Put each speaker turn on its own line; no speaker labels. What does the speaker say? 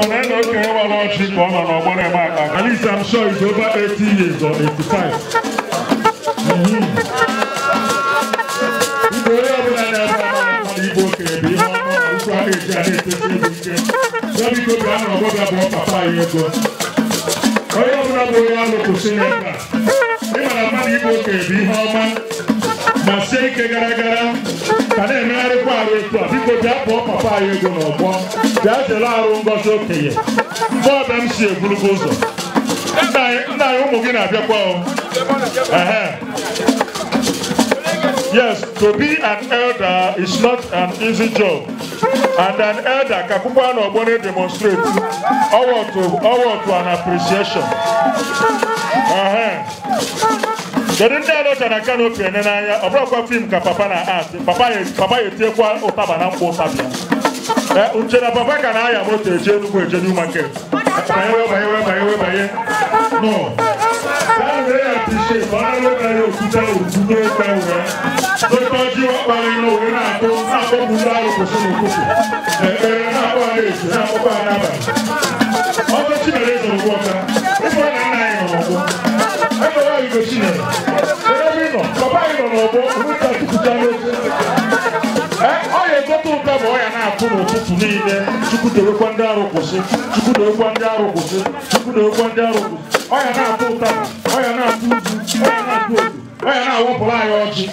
Commander Okere Overlord Chief ọ nọ n'ọgbọrọ eme aka. At least I'm sure it's over 80 years or 85. Igbo
onye ọbụla na-ebe ọmụmụ Igbo kere bụ ihe ọma ụkwụ ahụ eji a na-etete
ego ike. Ya biko bịa nọ ọgbọbịa bụ papa ya ego. Onye ọbụla bụ onye alụ kwụsị n'ebe a. Ị mara mmadụ Igbo kere bụ ihe ọma ma sie ike gara gara. ka na-emegharịkwa arụ etu a biko bịa kpọọ papa anyị ego n'ọgbọ bịa jere arụ ngozi okenye mgbe ọbịa m si egburugo ụzọ nna anyị ụmụ gị na-abịakwa ehe. Yes, to be an elder is not an easy job. And an elder, Kakupano na demonstrates na to, to an appreciation. kedu ndị a lechara kanopi ene n'anya ọ bụrụkwa fim ka papa na art papa ya etiekwa ụtaba na mkpa ụtabịa nche e, na papa ka na-aya moto eje enugwu eje new market banyewe banyewe banyewe banye no banyere ya tishe ọnụlụbanye okwute okwute
oke uwe ote ọjị ọkpara ilo wee na-akpọ na-akpọpụ ndị arụ kwụsị n'ụtụtụ ekpere e, e, na-akpọ ha na-ezu na-akpọpụ ha n'abalị ọkụ chinere zọrọ ụgbọ ọka ịfọ na nna anyị nọ n'ọgbọ ekpere oyibo chinere
bụ ụka chukwuta n'otu ọ ga-egote ụka bụ ọya na-akụ n'ụtụtụ niile chukwudowekwa ndị arụ kwụsị chukwudowekwa ndị arụ kwụsị chukwudowekwa ndị arụ kwụsị ọya na-atụ ụta ọya na-atụ uzu ọya na-atụ otu ọya na-awapụrụ anyị ọjị.